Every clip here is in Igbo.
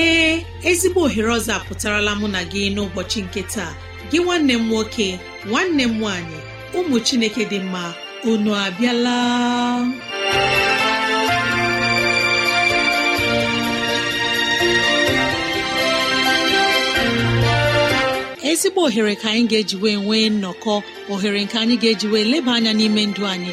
ee ezigbo ohere ọzọ apụtarala mụ na gị n'ụbọchị nke taa gị nwanne m nwoke nwanne m nwaanyị ụmụ chineke dị mma unu abịala ezigbo ohere ka anyị ga-eji wee nwee nnọkọ ohere nke anyị ga-eji wee leba anya n'ime ndụ anyị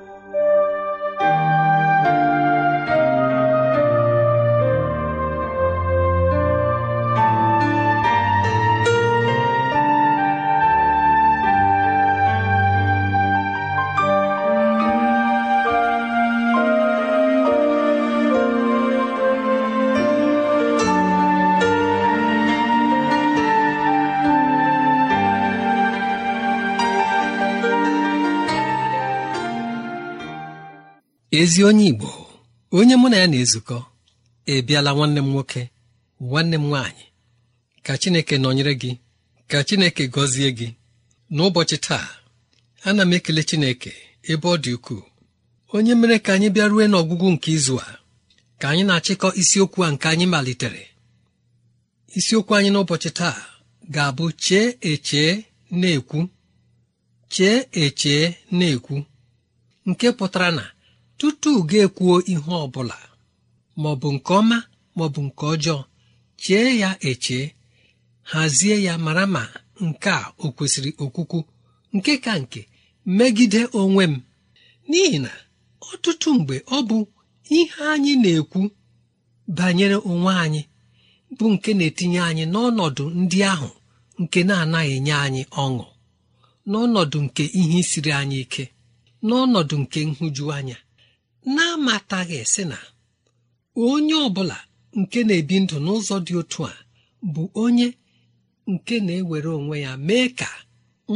ezi onye Igbo onye mụ na ya na-ezukọ ebiala nwanne m nwoke nwanne m nwaanyị ka Chineke nọnyere gị ka Chineke gọzie gị n'ụbọchị taa ana m ekele Chineke ebe ọ dị ukwuu onye mere ka anyị bịa rue n'ọgwụgwụ nke izu a ka anyị na-achịkọ isiokwu a nke anyị malitere isiokwu anyị n'ụbọchị taa ga-abụ chee echee na-ekwu chee echee na-ekwu nke pụtara na tutu ga-ekwuo ihe ọ bụla maọbụ nke ọma maọbụ nke ọjọọ chee ya eche hazie ya mara ma nke a o kwesịrị okwukwu nke ka nke megide onwe m n'ihi na ọtụtụ mgbe ọ bụ ihe anyị na-ekwu banyere onwe anyị bụ nke na-etinye anyị n'ọnọdụ ndị ahụ nke na-anaghị enye anyị ọṅụ n'ọnọdụ nke ihe siri anyị ike n'ọnọdụ nke nhụjuanya na-amataghị sị na onye ọ bụla nke na-ebi ndụ n'ụzọ dị otu a bụ onye nke na-ewere onwe ya mee ka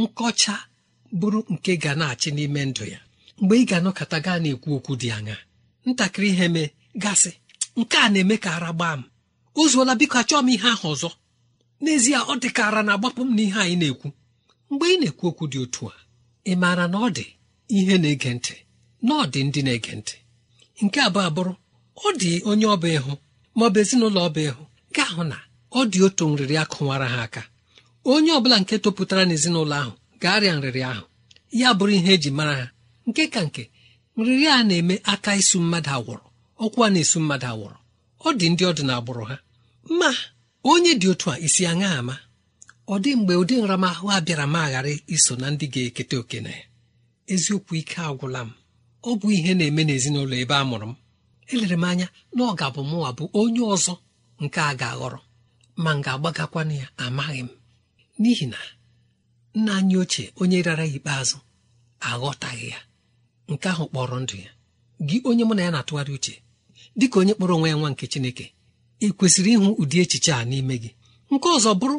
nkọcha bụrụ nke ga na-achị n'ime ndụ ya mgbe ị ga-anọkọta gaa na-ekwu okwu dị anya ntakịrị ihe mee gasị nke a na-eme ka ara gbaa m o zuola biko achọọ m ihe ahụ ọzọ n'ezie ọ dị ka ara na-agbapụ m n'ihe anyị na-ekwu mgbe ị na-ekwu okwu dị otu a ị maara na ọ dị ihe na-ege ntị na ndị na-ege ntị nke abụọ abụrụ ọ dị onye ọba ịhụ maọbụ ezinụlọ ọba ịhụ ga-ahụ na ọ dị otu nrịrị akụwara ha aka onye ọbụla nke topụtara n'ezinụlọ ahụ ga-arịa nrịrị ahụ ya bụrụ ihe eji mara ha nke ka nke nrịrị a na-eme aka isu mmadụ awụrụ ọkwa na-esu mmadụ agwụrụ ọ dị ndị ọdịna na agbụrụ ha ma onye dị otu a isi aṅa ama ọ dị mgbe ụdị nramahụ a bịara ma aghara iso na ndị ga-eketa oke na ya eziokwu ike agwụla m ọ bụ ihe na-eme n'ezinụlọ ebe a mụrụ m elere m anya na ọ ga-abụ mụnwa bụ onye ọzọ nke a ga-aghọrọ ma m ga-agbagakwana ya amaghị m n'ihi na nna anyị ochie onye rara ya ikpeazụ aghọtaghị ya nke ahụ kpọrọ ndụ ya gị onye mụ na ya na-atụgharị uche dị ka onye kpọrọ onwe ya nwa nke Chineke ị kwesịrị ịhụ ụdị echiche a n'ime gị nke ọzọ bụrụ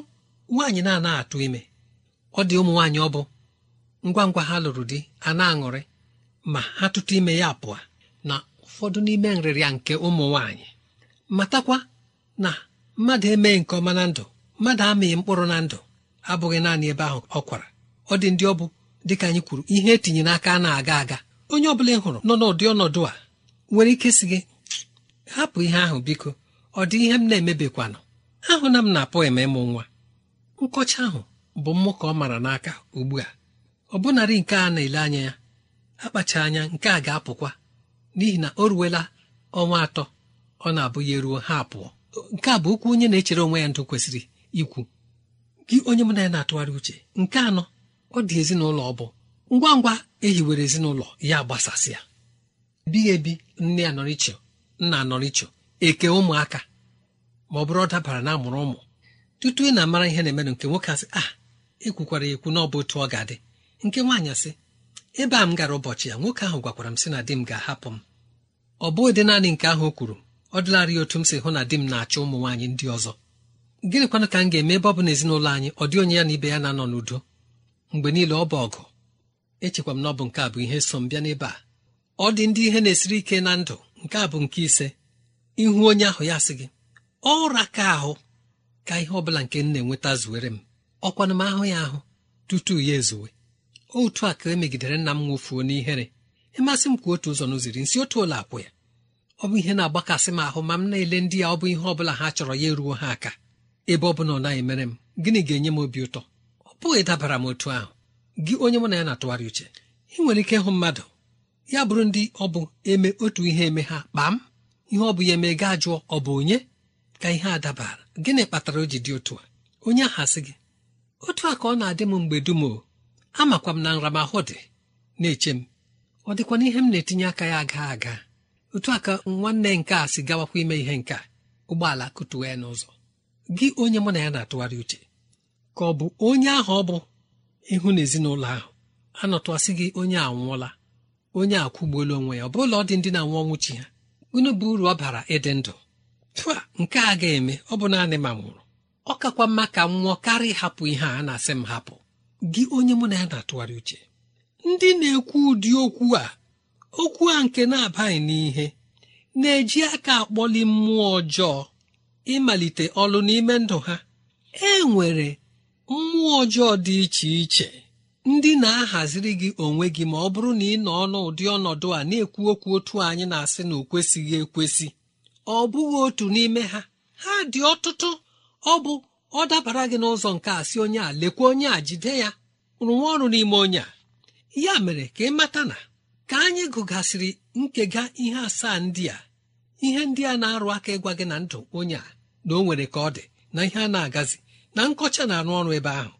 nwaanyị na-anaghị atụ ime ọ dị ụmụ nwaanyị ọ bụ ngwa ngwa ha lụrụ di a na-aṅụrị ma ha tụtụ ime ya pụọ na ụfọdụ n'ime nrịrịa nke ụmụ nwaanyị matakwa na mmadụ emeghị nke ọma na ndụ mmadụ amịghị mkpụrụ na ndụ abụghị naanị ebe ahụ ọ kwara ọ dị ndị ọ bụ dịka anyị kwuru ihe etinye n'aka na-aga aga onye ọbụla ị hụrụ nọ n'ụdị ọnọdụ a nwere ike si gị hapụ ihe ahụ biko ọ dị ihe m na-emebikwanụ ahụ na m na-apụ eme ịmụ nwa nkọcha ahụ bụ mmụ ka ọ mara n'aka ugbu a ọ nke a na-ele anya ya akpacha anya nke a ga-apụkwa n'ihi na o ruwela ọnwa atọ ọ na-abụ ya eruo ha pụọ nke a bụ okwu onye na-echere onwe ya ndụ kwesịrị ikwu gị onye mụ na ya na-atụgharị uche nke anọ ọ dị ezinụlọ ọ bụ ngwa ngwa ehiwere ezinụlọ ya gbasasịa bighị ebi nne anọrịchọ nna anọrịchọ eke ụmụaka ma ọ bụrụ ọ dabara na amụrụ ụmụ tutu ị na-amara ihe na-emenụ nke nwoke asị a ah, ekwukwara ekwu na ọ bụ otu ọ ga-adị nke nwaanyị asị ebe a m gara ụbọchị ya nwoke ahụ gwakwara m sị na di m ga-ahapụ m ọ bụghị dị naanị nke ahụ o kwuru ọ dịlarị otu m si hụ na di m na-achọ ụmụ nwaanyị ndị ọzọ gịnịkwanụ ka m ga-eme ebe ọ bụ na ezinụlọ anyị ọ dị onye ya na ibe ya na-anọ n'udo mgbe niile ọ bụ ọgụ echekwa m na ọ bụ nke a bụ ihe so m bịa n'ebe a ọ dị ndị ihe na-esiri ike na ndụ nke a bụ nke ise ihu onye ahụ ya sị gị ụra ka ahụ ka ihe ọ bụla nke m na-enweta zuwere m ọkwana m ahụ ya ahụ tutu ya ezuwe otu a ka emegidere nna m nwofuo n'ihere ịmasị m ka otu ụzọ n'ụziri nsi otu ụlọ akwụ ya ọ bụ ihe na-agbakasị m ahụ ma m na-ele ndị ya ọ bụ ihe ọ bụla ha chọrọ ya eruo ha aka ebe ọ bụla ọ naghị mere m gịnị ga-enye m obi ụtọ ọ bụghị dabara m otu ahụ gị onye mụ na ya na-atụgharị uche ị nwere ike ịhụ mmadụ ya bụrụ ndị ọ bụ eme otu ihe eme ha kpam m ihe ọ bụ ya eme gaa jụọ ọ bụ onye ka ihe a dabara gịnị kpatara o ji dị otu a onye ahasị gị otu a ka ọ na-adị m mgbe dum o amakwa m na ahụ dị na-eche m ọ dịkwa ihe m na-etinye aka ya aga aga otu aka nwanne nke a si gawakwa ime ihe nke ụgbọala kụtuwe ya n'ụzọ gị onye mụ na ya na-atụgharị uche ka ọ bụ onye ahụ ọ bụ ịhụ na ezinụlọ ahụ anọtụasị gị onye anwụọla onye akwụgbuola onwe ya ọ bụla ọ dị ndị na-anwụ ọnwụ ha unu bụ uru ọ bara ịdị ndụ tụa nke a ga-eme ọ bụ naanị ma nwụrụ ọ kakwa mma ka m nwụọ karịa ịhapụ ihe a na-asị m hapụ gị onye mụ na ya na-atụgharị uche ndị na-ekwu ụdị okwu a okwu a nke na-abaghị n'ihe na-eji aka akpọli mmụọ ọjọọ ịmalite ọlụ n'ime ndụ ha e nwere mmụọ ọjọọ dị iche iche ndị na-ahaziri gị onwe gị ma ọ bụrụ na ị nọ n'ụdị ọnọdụ a na-ekwu okwu otu anyị na-asị na o kwesịghị ekwesị ọ bụghị otu n'ime ha ha dị ọtụtụ ọ bụ ọ dabara gị n'ụzọ nke a si onye a lekwa onye a jide ya rụwa ọrụ n'ime onye a ya mere ka ị mata na ka anyị gụgasịrị nkega ihe asaa ndị a ihe ndị a na-arụ aka ịgwa gị na ndụ onye a na o nwere ka ọ dị na ihe a na-agazi na nkọcha na-arụ ọrụ ebe ahụ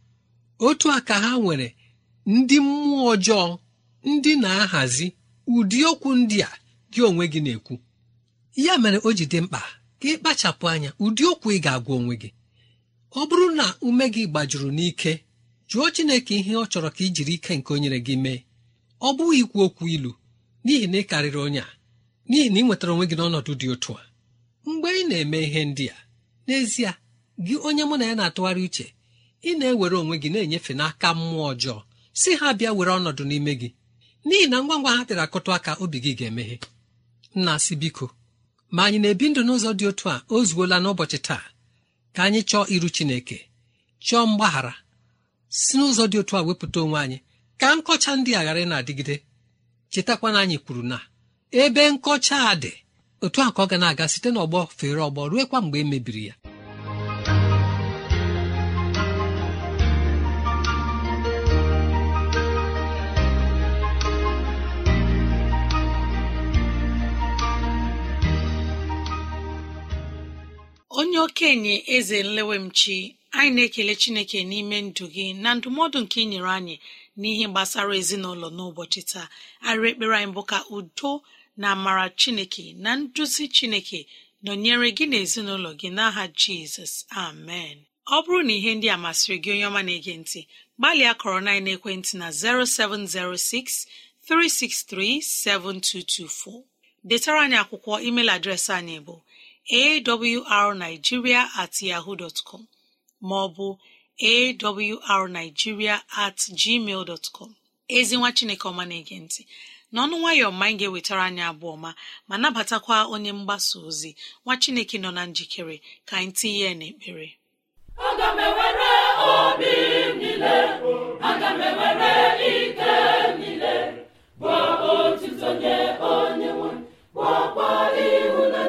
otu a ka ha nwere ndị mmụọ ọjọọ ndị na-ahazi ụdị okwu ndị a gị onwe gị na-ekwu ya mere o ji dị mkpa ka ị kpachapụ anya ụdị okwu ị ga-agwa onwe gị ọ bụrụ na ume gị gbajuru n'ike jụọ Chineke ihe ọ chọrọ ka i jiri ike nke o nyere gị mee ọ bụghị ikwu okwu ilu n'ihi na ị karịrị onye a n'ihi na ị nwetara onwe gị n'ọnọdụ dị otu a mgbe ị na-eme ihe ndị a n'ezie gị onye mụ na ya na-atụgharị uche ị na-ewere onwe gị na-enyefe n'aka mmụọ ọjọọ si ha bịa were ọnọdụ n'ime gị n'ihi na ngwa ngwa ha tịrị akụtụ aka obi gị ga-emeghe nna si biko ma anyị na-ebi ndụ n'ụzọ dị otu a o zuola n'ụbọchị taa ka anyị chọọ iru chineke chọọ mgbaghara si n'ụzọ dị otu a wepụta onwe anyị ka nkọcha ndị aghara ghara na-adịgide chetakwana anyị kwuru na ebe nkọcha a dị otu a ka ọ ga na-aga site n'ọgbọ fere ọgbọ ruekwa mgbe e mebiri ya onye okenye eze nlewemchi anyị na-ekele chineke n'ime ndụ gị na ndụmọdụ nke ị nyere anyị n'ihe gbasara ezinụlọ n'ụbọchị taa arịrị ekpere anyị bụ ka udo na amara chineke na nduzi chineke nọnyere gị na ezinụlọ gị n'aha jizọs amen ọ bụrụ na ihe ndị a masịrị gị onye ọma na-ege ntị gbalịa kọrọ na ekwentị na 0706 363 7224 detara anyị akwụkwọ email adreesị anyị bụ awrnigeria at yahoo dọtkọm maọbụ awrnigeria at gmail ezi nwa chineke ọma na-ege ntị n'ọnụ nwayọ ma anyị ga-ewetara anyị abụọ ma ma nabatakwa onye mgbasa ozi nwa chineke nọ na njikere ka anyị tinye n'ekpere aga m ewere onye nwe ihu na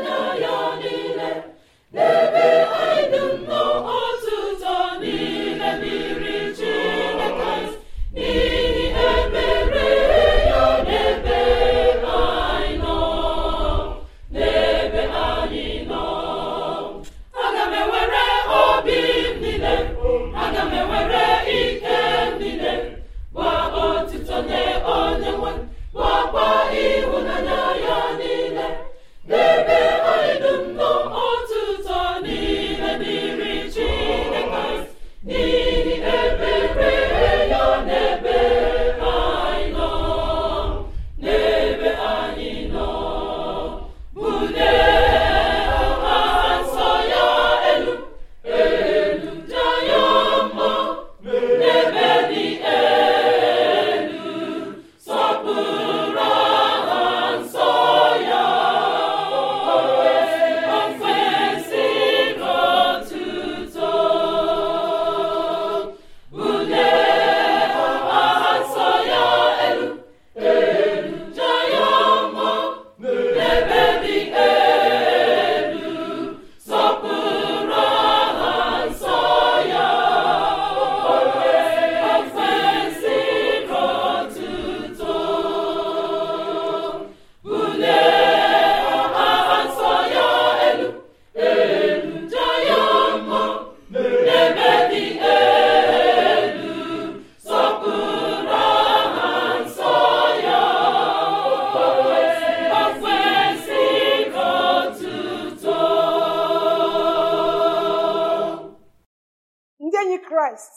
enyi kraịst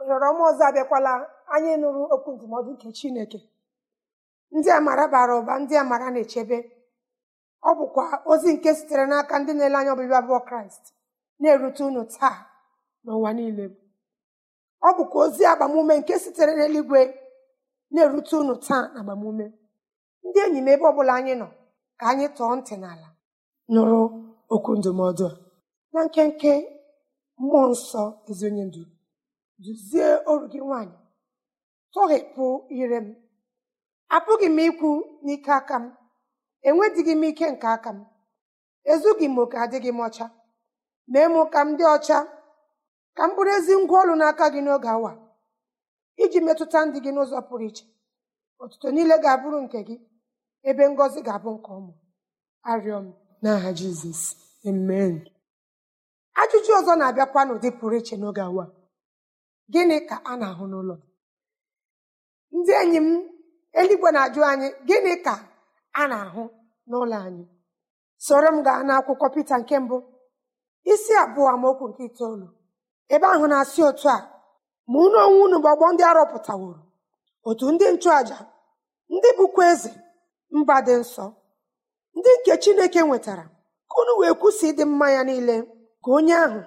ohere ọma ọzọ abịakwala anyị nụrụ okwu ndụmọdụ nke chineke ndị amara bara ụba ndị amara na-echebe ọ bụkwa ozi nke sitere n'aka ndị na-ele anya ọbịbịa abụọ kraịst na-erute unu taa n'ụwa niile ọ bụkwa ozi agbamume nke sitere n'eluigwe na-erute unu taa na agbamume ndị enyi m ebe ọ bụla anyị nọ ka anyị tọọ ntị n'ala nụrụ okwu ndụmọdụ na nkenke mmụọ nsọ ezi onye ndu duzie oru gị nwanyị tọghepụ ire m apụghị m ikwu n'ike aka m enwedịghị m ike nke aka m ezughị m oke adịghị m ọcha mee mụ ka m dị ọcha ka m bụrụ ezi ngwa ọrụ n'aka gị n'oge awa iji metụta ndị gị n'ụzọ pụrụ iche ọtụtụ niile ga-abụrụ nke gị ebe ngọzi ga-abụ nke ọmụ arịọ m n'aha Jizọs amen ajụjụ ọzọ na-abịakwa n'ụdị pụrụ iche n'oge awa gịnị ka a na-ahụ n'ụlọ ndị enyi m eluigwe na-ajụ anyị gịnị ka a na-ahụ n'ụlọ anyị soro m gaa n'akwụkwọ Pita nke mbụ isi abụọ amaokwu nke itoolu ebe ahụ na-asị otu a ma unu onwe unu bụ ọgbọ ndị arọpụtaworo otu ndị nchụaja ndị bụkwa eze mba dị nsọ ndị nke Chineke nwetara ka unu wee kwụsị ịdị mma ya niile ka onye ahụ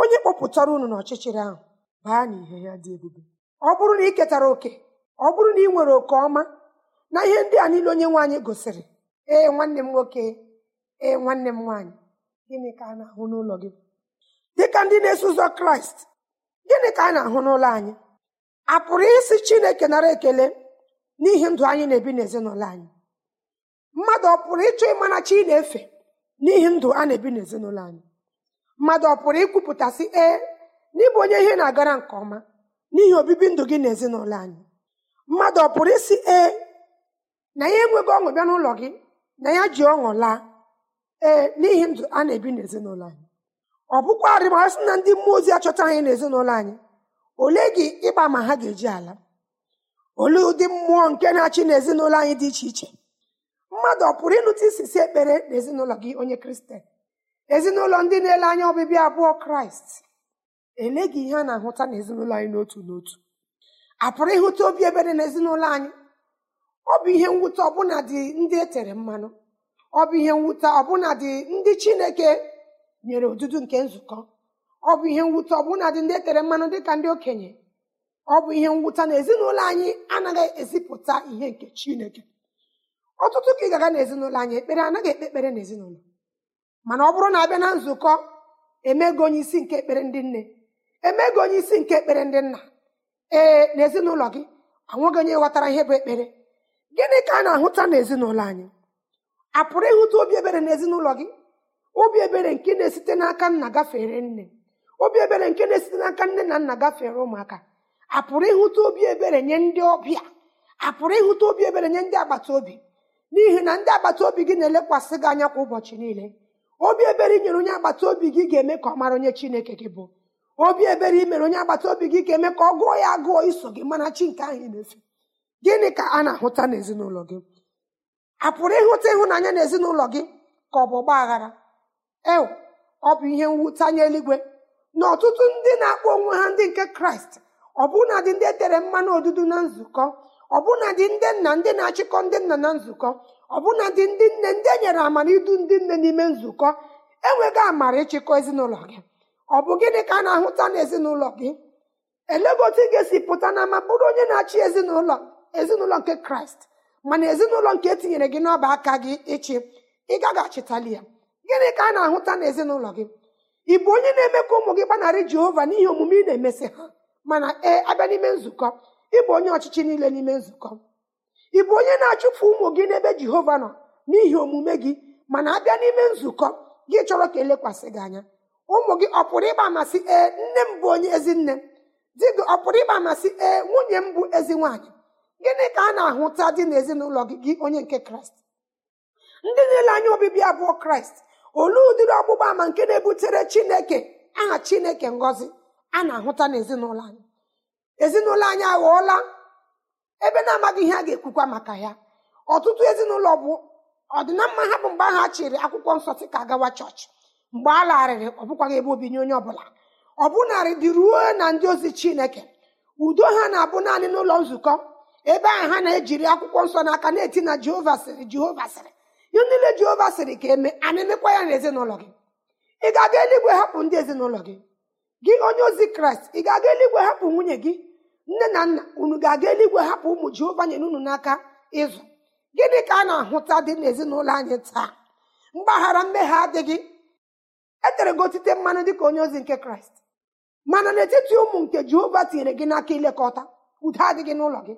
onye kpọpụtara unu n'ọchịchịrị ahụ baa n'ihe ya dị ebube ọ bụrụ na ị ketara oke ọ bụrụ na ị nwere oke ọma na ihe ndị a niile onye nwaanyị gosiri ee nwanne m nwoke ee nwanne m nwaanyị gịnị ka a na-ahụ n'ụlọ gị dịka ndị na-eso ụzọ kraịst gịnị ka a na-ahụ n'ụlọ anyị a pụrụ isi chineke nara ekele n'ihi ndụ anyị na-ebi n'ezinụlọ anyị mmadụ ọ pụrụ ịchọ ịma na chi na-efe n'ihi ndụ a na-ebi n'ezinụlọ anyị mmadụ ọ pụrụ ikwupụtasị ee n'ịbụ onye ihe na-agara nke ọma n'ihi obibi ndụ gị na ezinụlọ anyị mmadụ ọ pụrụ isi ee na ya enweghị ọṅụ bịa n'ụlọ gị na ya ji ọṅụ laa ee n'ihi ndụ a na-ebi n'ezinụlọ anyị ọ bụkwarị ma na ndị mmụọ ozi achọta anyị n'ezinụlọ anyị ole gị ịgba ma ha ga-eji ala olee ụdị mmụọ nke na-achị n'ezinụlọ anyị dị iche iche mmadụ ọ pụrụ ịnụta isisi ekpere n'ezinụlọ gị onye kristen ezinụlọ ndị na-ele anya ọbịbịa abụọ kraịst eleghị ihe a na-ahụta na anyị n'otu n'otu a pụrụ ịhụta obi ebere na ezinụlọ anyị ọ bụ ihe mwute ọbụna dị ndị e tere mmanụ ọ bụ ihe mwute ọbụna dị ndị chineke nyere odudu nke nzukọ ọ bụ ihe mwute ọbụna dị ndị e tere mmanụ ka ndị okenye ọ bụ ihe mwute na ezinụlọ anyị anaghị ezipụta ihe nke chineke ọtụtụ ka ị gaga na ezinụlọ anyị ekpere anaghị ekpe ekpere na ezinụlọ mana ọ bụrụ na abịa na nzukọ emego onye isi nke ekpere ndị nne emego onye isi nke ekpere ndị nna ee n'ezinụlọ gị anwụghị onye ghọtara ihe bụ ekpere gịnị ka a na-ahụta n'ezinụlọ anyị a pụrụ ịhụta obi ebere n'ezinụlọ gị obi ebere nke na-esite n'aka nna gafere nne obi ebere nke na-esite n'aka nne na nna gafere ụmụaka a pụrụ ịhụta obi ebere nye ndị ọbịa a pụrụ ịhụta obi ebere nye ndị agbata obi n'ihi na ndị agbata obi gị na-elekwasị gị anya kwa ụbọchị niile obi ebere inyere onye agbata obi gị ga-eme ka ọ mara onye chineke gị bụ obi ebere imere onye agbata obi gị ga-eme ka ọ gụọ ya agụọ iso gị mana chi nke ahụ na-efe gịnị ka a na-ahụta n'ezinụlọ gị a pụrụ ịhụta ịhụnanya n'ezinụlọ gị ka ọ bụ ọgba aghara e ọ bụ ihe mwutanye eluigwe na ọtụtụ ndị na-akpọ onwe ha ndị nke kraịst ọbụnadị dị ndị e tere mmanụ odudu na nzukọ ọbụna ndị nna ndị na-achịkọ ndị nna na nzukọ ọbụna ndị ndị nne ndị e nyere amara idu ndị nne n'ime nzukọ enweghị amara ịchịkọ ezinụlọ gị ọ bụ gịnị ka a na-ahụta n'ezinụlọ gị otu ị ga-esi pụta na ama bụrụ onye na-achị ezinụlọ ezinụlọ nke kraịst mana ezinụlọ nke etinyere gị n'ọba aka gị ịchị ị gaghị achịtali ya gịnị ka a na-ahụta n'ezinụlọ gị ị bụ onye na-eme ka ụmụ gị gbanarị jehova n'ihe omume ị na-emesị ha mana ee abịa n'ime nzukọ ịbụ onye ọchịchị niile n'ime nzukọ ị bụ onye na-achụpụ ụmụ gị n'ebe jehova nọ n'ihi omume gị mana abịa n'ime nzukọ gị chọrọ ka elekwasị gị anya ụmụ gị ọ pụrụ ịgba amasị ee nne m bụ onye ezi nne di gị ọ pụrụ ịgba amasị ee nwunye m bụ ezi nwaanyị gịnị ka a na-ahụta dị n'ezinụlọ gị gị onye nke kraịst ndị niile anya obibi abụọ kraịst olee ụdịrị ọgbụgba ama nke na-ebutere chineke aha chineke ngọzi a na-ahụta n'ezinụlọ anyị ezinụlọ anyị aghọọla ebe na-amaghị ihe a ga-ekwukwa maka ya ọtụtụ ezinụlọ bụ ọdịna ha bụ mgbe ahụ a chịrị akwụkwọ nsọ sị ka agawa chọọchị mgbe a larịrị ọ bụkwaghị ebe obinye onye ọbụla ọ bụnarị dị ruo na ndị ozi chineke udo ha na-abụ naanị n'ụlọ nzukọ ebe ahụ ha na-ejiri akwụkwọ nsọ n'aka na-eti na jehova sịrị jehova sịrị ihe niile jehova sịrị ka eme ana emekwa ya na ezinụlọ gị ị aga eluigwe hapụ ndị ezinụlọ gị gị onye ozi kraịst ị ga-aga eluigwe hapụ nwunye gị nne na nna unu ga-aga eluigwe hapụ ụmụ jehova nyere unu n'aka ịzụ gịnị ka a na-ahụta dị n'ezinụlọ anyị taa mgbaghara mmehie adịghị edere gị otite mmanụ ka onye ozi nke kraịst mana n'etiti ụmụ nke jehova tinyere gị n'aka ilekọta udo adịghị n'ụlọ gị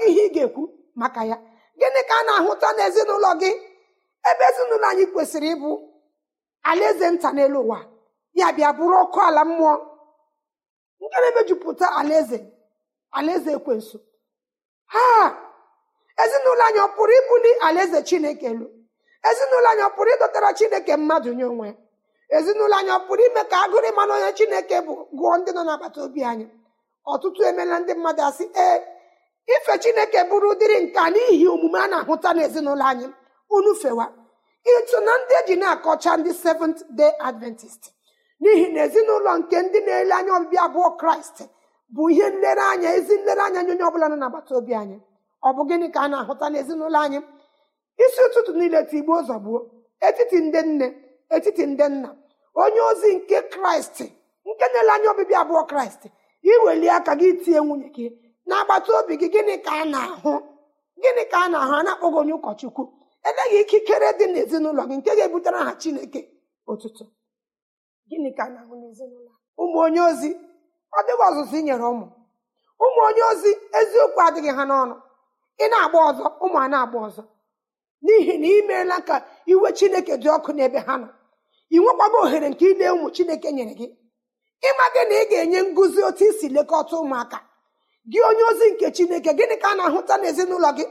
gị ihe ị ga-ekwu maka ya gịnị ka a na-ahụta n'ezinụlọ gị ebe ezinụlọ anyị kwesịrị ịbụ alaeze nta n'elu ụwa ya bịa bụrụ ọkụ ala mmụọ na-emejupụta alaeze alaeze ekwensu ha ezinụlọ anyị ọ pụrụ ibuli alaeze chineke lụ ezinụlọ anyị ọ pụrụ ịdọtara chineke mmadụ nye onwe ezinụlọ anyị ọ pụrụ ime ka agụrụ ịmanụ onye chineke bụ gụọ ndị nọ n'agbata obi anyị ọtụtụ emeela ndị mmadụ asị ee ife chineke bụrụ udiri nka n'ihi omume a na-ahụta n'ezinụlọ anyị unu fewa ịtụ na ndị eji na-akọcha ndị seventh day adventist n'ihi na ezinụlọ nke ndị na-ele anya ọbịbịa abụọ kraịst bụ ihe nlereanya ezi nlereanya nye onye ọbụla nọ n'agbata obi anyị ọ bụ gịnị ka a na-ahụta n'ezinụlọ anyị isi ụtụtụ niile tigbuo ụzọ gbuo etiti ndị nne etiti ndị nna onye ozi nke kraịst nke na-ele anya ọbịbịa abụọ kraịst iweli aka gị tinye nwunye gị agbata obi gị gịnị ka a na-ahụ gịnị ka a na-ahụ a na-akpọghị onye ụkọchukwu eleghị ikikere dị n'ezinụlọ gị nke ga-ebutere ha chineke ụtụtụ gịnị ka a na-ahụ n'ezinụlọ ụmụ onye ozi ọ dịghị ọzụzụ inyere nyere ụmụ ụmụ onye ozi eziokwu adịghị ha n'ọnụ ị na-agba ọzọ ụmụ a na-agba ọzọ n'ihi na ị meela ka iwe chineke dị ọkụ n'ebe ha nọ ị nwekwaga ohere nke ile ụmụ chineke nyere gị ịma na ị ga-enye ngụzi otu isi lekọta ụmụaka gị onye ozi nke chineke gịnị ka a na-ahụta n'ezinụlọ gị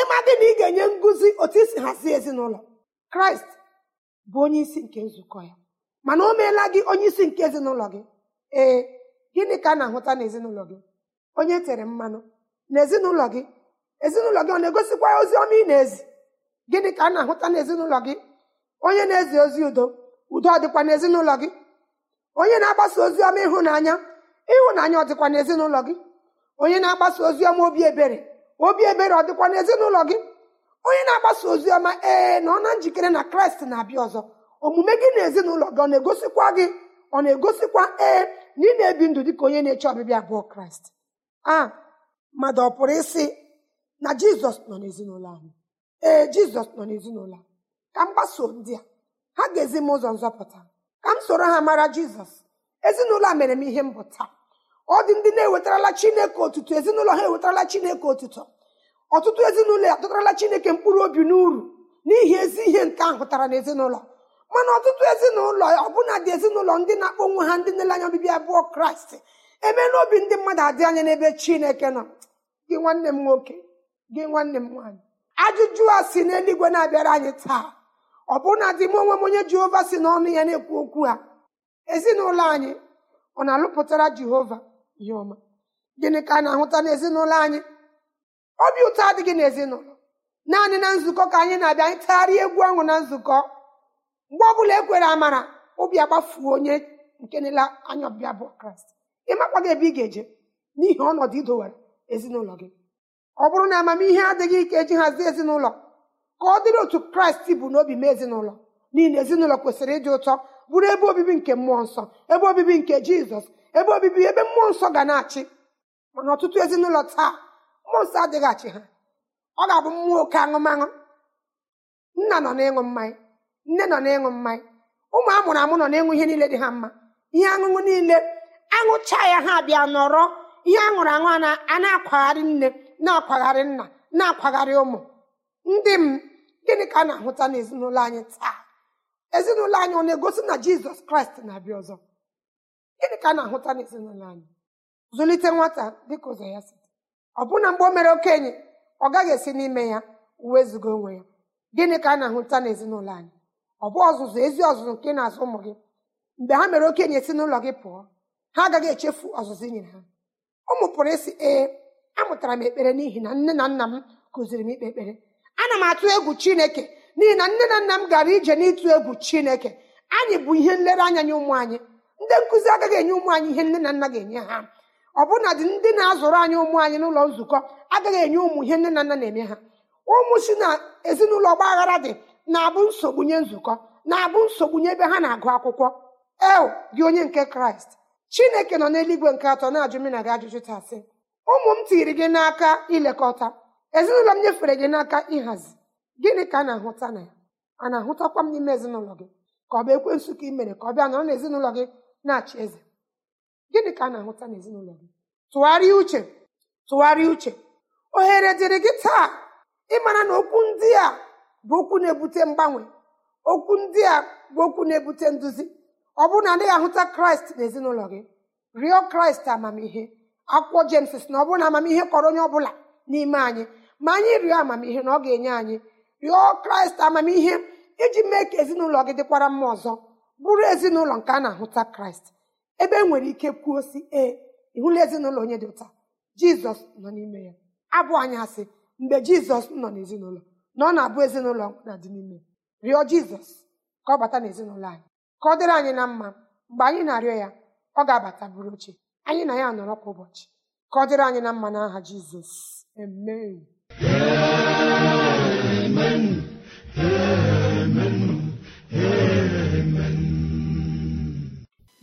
ịma gị na ị ga-enye ngụzi otu isi hazie ezinụlọ kraịst bụ onye isi nke nzukọ ya mana o meela gị onye isi nke ezinụlọ gị ee gịnị ka a na-ahụta n'ezinụlọ gị onye e tere mmanụ na gị ezinụlọ gị ọ na-egosikwa ozi ọma ị na-ezi gịnị ka a na-ahụta n'ezinụlọ gị onye na-ezi ozi udo udo ọ dịkwa n'ezinụlọ gị onye na-agbasa ozi ọma ịhụnanya ịhụnanya ọ dịkwa n'ezinụlọ gị onye na-agbasa ozi ọma obi ebere obi ebere ọ dịkwa n'ezinụlọ gị onye na-agbasa ozi ọma ee na ọ na njikere na kraịst na-abịa ọzọ omume gị na ezinụlọ gị ọ na-egosikwa gị ọ na-egosikwa ee na ị na-ebi ndụ dị ka onye na-eche ọbịbịa abụọ kraịst a mmadụ ọ pụrụ isi na jizọs nọ n'ezinụlọ anyị ee jizọs nọ n'ezinụlọ ka m gbasoo ndị a ha ga-ezi m ụzọ nzọpụta ka m soro ha mara jizọs ezinụlọ a mere m ihe mbụta taa ọ dị ndị na-ewetarala chineke otutu ezinụlọ ha ewetarala chineke otutu ọtụtụ ezinụlọ ya atụtarala chineke mkpụrụ obi n'uru n'ihi ezi ihe nke ahụ hụtara n'ezinụlọ mana ọtụtụ ezinụlọ ọbụna dị ezinụlọ ndị na-akpọ ha ndị nele anya obibi abụọ kraịst eme n'obi ndị mmadụ adị anya n'ebe chineke nọ gị nwanne m nwoke gị nwanne m nwaanyị ajụjụ a si n'eluigwe na-abịara anyị taa bụna dị m onwe m onye jehova si n'ọnụ ya na-ekwu okwu ha ezinụlọ anyị ọ na-alụpụtara jehova ihe ọma gịnị ka a na-ahụta n'ezinụlọ anyị obi ụtọ adịghị n'ezinụlọ naanị na nzukọ ka anyị na-abịa anyị tagharịa egwu ọṅụ na nzukọ mgbe ọ bụla ekwere amara obi agbafuo onye nke nela anya ọbịa bụ kraịst ịmakwa gị ebe ị ga-eje n'ihi ọnọdụ idowere ezinụlọ gị ọ bụrụ na amamihe adịghị ike eji hazie ezinụlọ ka ọ dịrị otu kraịst bụ n'obi mee ezinụlọ n'ihi na ezinụlọ kwesịrị ịdị ụtọ bụrụ ebe obibi nke mmụọ nsọ ebe obibi nke jizọs ebe obibi ebe mmụọ nsọ ga na-achị mana ọtụtụ ezinụlọ taa mmụọ nsọ adịghị achị ha ọ ga-abụ mmụọ oke aṅụmaṅụ nna nọ n'ịṅụ mmanya nne nọ na-ịṅụ mmanya ụmụ amụrụ amụ nọ n'ịṅụ ihe niile dị ha mma ihe aṅụṅụ niile aṅụcha ya ha bịa nọrọ ihe aṅụrụ aṅụ a na-akwagharị nne na-akwagharị nna na-akwagharị ụmụ ndị m gịnị ka a na-ahụta n'ezinụlọ anyị taa ezinụlọ anyị ọ na-egosi na jizọs kraịst na-abịa ọzọ gịnị ka a na-ahụta n'ezinụlọ anyị zụlite nwata dịka ụzọ ya si ọbụna mgbe o mere okenye ọ gaghị esi n'ime ya wezụga onwe ya gịnị ka a na-ahụta n'ezinụlọ anyị ọ bụ ọzụzụ ezi ọzụzụ nke na-azụ ụmụ gị mgbe ha mere okenye e si n'ụlọ gị pụọ ha agaghị echefu ọzụzụ i nyere ha ụmụ pụrụ isi ee amụtara m ekpere n'ihi na nne na nna m kụziri m ikpe ekpere ana m atụ egwu chineke n'ihi na nne na nna m gara ije n'ịtụ egwu chineke anyị bụ ihe nlereanya nye ụmụ anyị ndị nkụzi agaghị enye ụmụ anyị ihe nne na nna ga-enye ha ọbụna dị ndị na-azụrụ anyị ụmụ anyị n'ụlọ nzukọ agaghị enye ụmụ ihe nne na nna na-eme ha ụmụ si na ezinụlọ ọgba dị na-abụ nsogbu nye nzukọ na-abụ nsogbu nye ebe ha na-agụ akwụkwọ eo gị onye nke kraịst chineke nọ n'eluigwe nke atọ na-ajụ na gị ajụjụ tasị ụmụ m tiri gị n'aka ilekọta ezinụlọ m nyefere gị n'aka ịhazi gịnị ka a na-ahụta na ya a na-ahụtakwa m n'ime ezinụlọ gị ka ọ bụ ka ị mere ka ọ bịa nọrọ n'ezinụlọ gị na-achị eze gịnị ka a na-ahụta n'ezinụlọ gị tụgharịa uche tụgharịa uche ohere dịrị gị taa ịmara na okwu ndị a bụ okwu na-ebute mgbanwe okwu ndị a bụ okwu na-ebute nduzi ọ bụrụ na adịghị ahụta kraịst n'ezinụlọ gị rịọ kraịst amamihe akwụkwọ jems na ọ bụrụ na amamihe kọrọ onye ọbụla n'ime anyị ma anyị rịọ amamihe na ọ ga-enye anyị rịọ kraịst amamihe iji mee ka ezinụlọ gị dịkwara mma ọzọ bụrụ ezinụlọ nke a na-ahụta kraịst ebe e nwere ike kwuo si ee ịhụla ezinụlọ onye dị ụta jizọs nọ n'ime ya abụ anyị asị mgbe jizọs nọ n'ezinụlọ na ọ na-abụ ezinụlọ na dị n'ime rịọ jizọs ka ọ bata n'ezinụlọ anyị ka ọ dịrị anyị na mma mgbe anyị na-arịọ ya ọ ga-abata bụrụ oche anyị na ya nọrọ kwa ụbọchị ka ọ dịrị anyị na mma na n'aha jizọs amen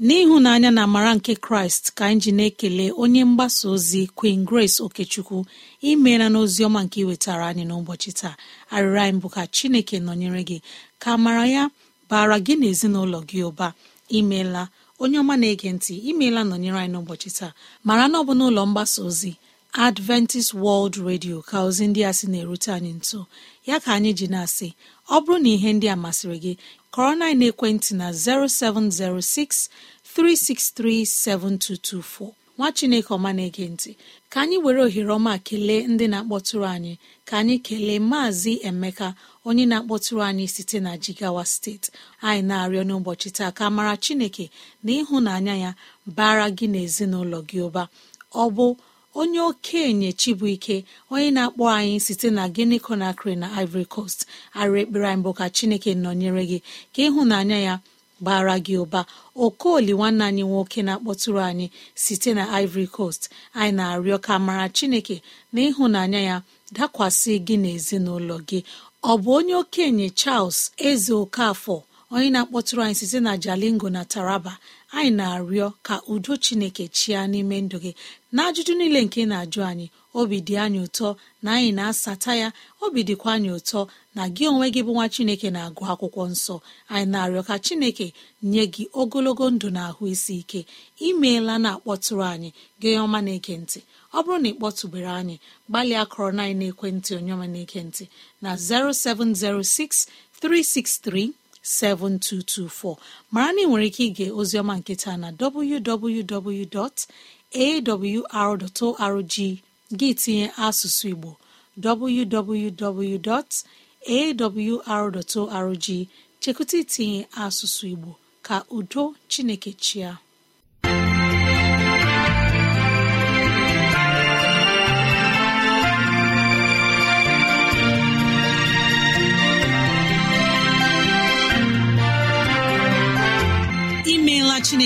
n'ịhụnanya na amara nke kraịst ka anyị ji na-ekele onye mgbasa ozi queen grace okechukwu imeela n'ozi ọma nke iwetara anyị n'ụbọchị taa arịrị anyị bụ ka chineke nọnyere gị ka amara ya bara gị na ezinụlọ gị ụba imeela onye ọma na-ege ntị imeela nọnyere anyị n'ụbọchị taa mara na ọ bụ mgbasa ozi adventist world radio ka ozi ndị a sị na-erute anyị nso ya ka anyị ji na-asị ọ bụrụ na ihe ndị a masịrị gị kọrọ na ekwentị na 07063637224 nwa chineke ọma na-ege ntị ka anyị were ohere ọma kelee ndị na-akpọtụrụ anyị ka anyị kelee maazị emeka onye na-akpọtụrụ anyị site na jigawa steeti anyị na-arịọ n'ụbọchị taa ka mara chineke na ịhụnanya ya bara gị na ezinụlọ gị ụba ọ bụ onye okenye chibuike onye na-akpọ anyị site na Guinea Conakry na Ivory Coast arụ ekpere anyị bụ ka chineke nọnyere gị ka ịhụnanya ya bara gị ụba okoli nwanne anyị nwoke na-akpọtụrụ anyị site na Ivory Coast anyị na-arịọ ka mara chineke na ịhụnanya ya dakwasị gị na ezinụlọ gị ọ bụ onye okenye Charles Eze Okafọ onye na-akpọtụrụ anyị site na jalingo na taraba anyị na-arịọ ka udo chineke chịa n'ime ndụ gị na ajụjụ niile nke na-ajụ anyị obi dị anyị ụtọ na anyị na-asata ya obi dịkwa anyị ụtọ na gị onwe gị bụ nwa chineke na-agụ akwụkwọ nsọ anyị na-arịọ ka chineke nye gị ogologo ndụ na ahụ isi ike imeela na-akpọtụrụ anyị gị ọma na-ege ọ bụrụ na ị kpọtụbere anyị gbalịa akọrọ na ekwentị onye ọma na-ege na 0706 363 7224 mara na ị nwere ike ige ozioma nketa na www.awr.org gị tinye asụsụ Igbo www.awr.org chekụta itinye asụsụ Igbo ka udo Chineke chịa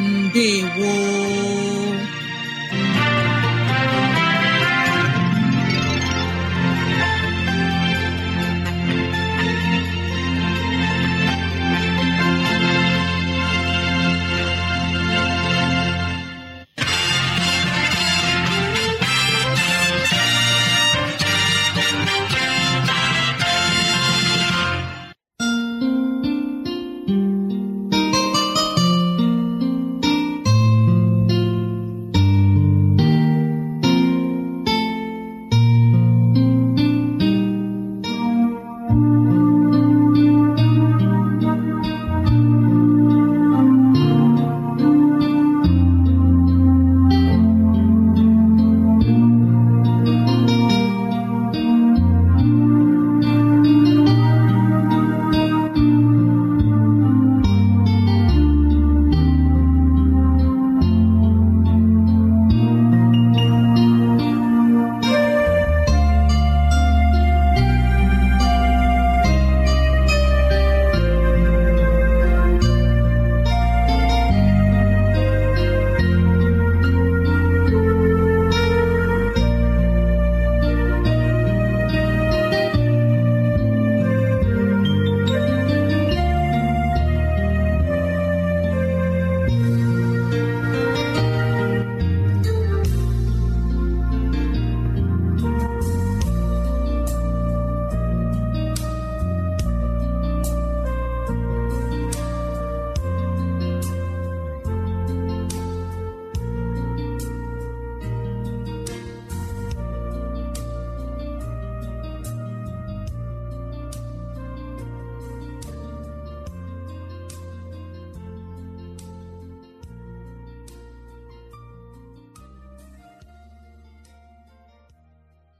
ndewo